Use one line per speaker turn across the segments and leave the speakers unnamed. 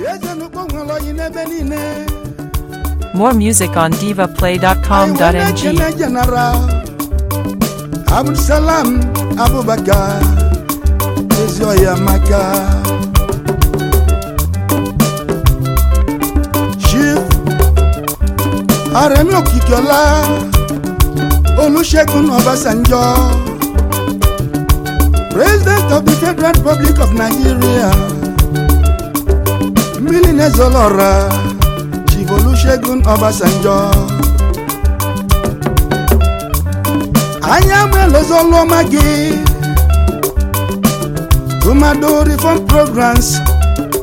E More music on divaplay.com.ng. Abdulsalam Abubakar is your Yamaka. Chief Aremi Okikiola Olusegun Obasanjo, President of the Federal Republic of Nigeria. mmiri na-ezoro ọra Chivolusegun Obasanjo anya m elozolụọma gị tụmadụ reform programs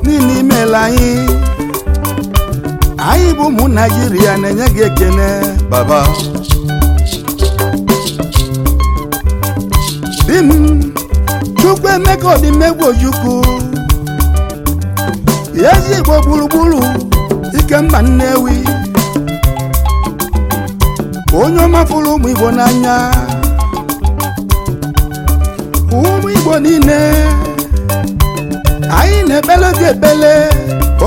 niile imela anyị anyị bụ ụmụ naijiria na-enye gị ekele baba di m Chukwuemeka Odimegwu Ojukwu ezi ezigbo gburugburu ike ikemba nnewi onye ọma fụrụ ụmụ igbo n'anya ụmụ igbo niile anyị na-ekpele gị ekpele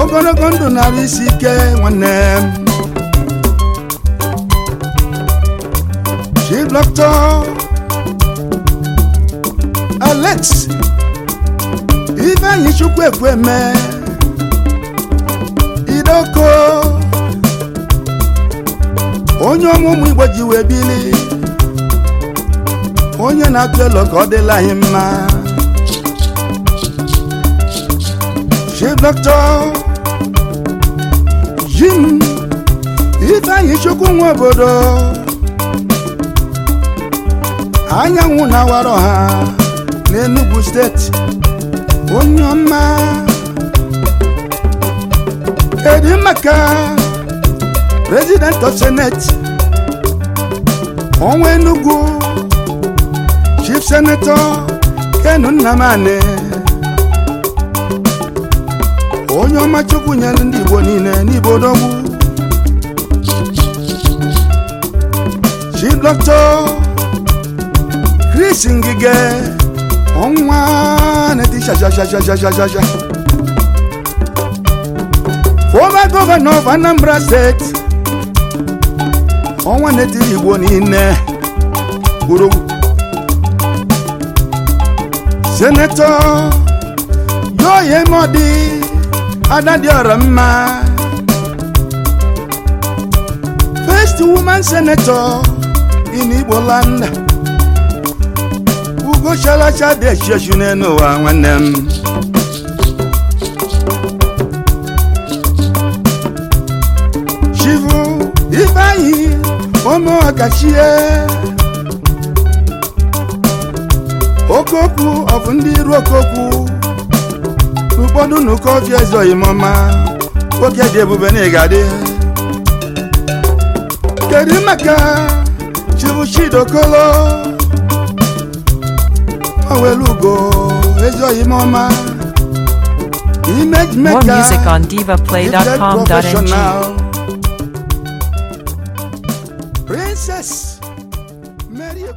ogologo ndụ narị isi ike nwanne m Chief Doctor Alex Ifeanyi Chukwu Ekwueme adoko onye ọmụmụ igbo ji wee bili onye na-akụ elo ka ọ dịla anyị mma chief doctor jim ifeanyị chukwu nwa obodo anyanwụ na-awara ọha n'Enugu steeti onye ọma edimaka president of senate ọnwa enugu chief senator kenu nnamani onye ọma nyere ndị igbo niile n'ibo dogbu chief doctor chris ngige ọnwa na-eti shashashashashashasha nwa gọvanọ of Anambra steeti ọnwa na-etiri igbo niile kwuru senetọ yoye mọdị ada dị ọra mma first woman senetọ in igbo land ugo shalacha dị echichi n'elu nwanne m chivu ifeanyi ụmụ ọkachie okokwu ọbụ ndị iru okokwu ụfọdụ n'ụkọ ofi ezoghị m ọma dị ebube na ịgadị kedu maka chivu chidokolo owelu ugo More music on divaplay.com.ng. princess mary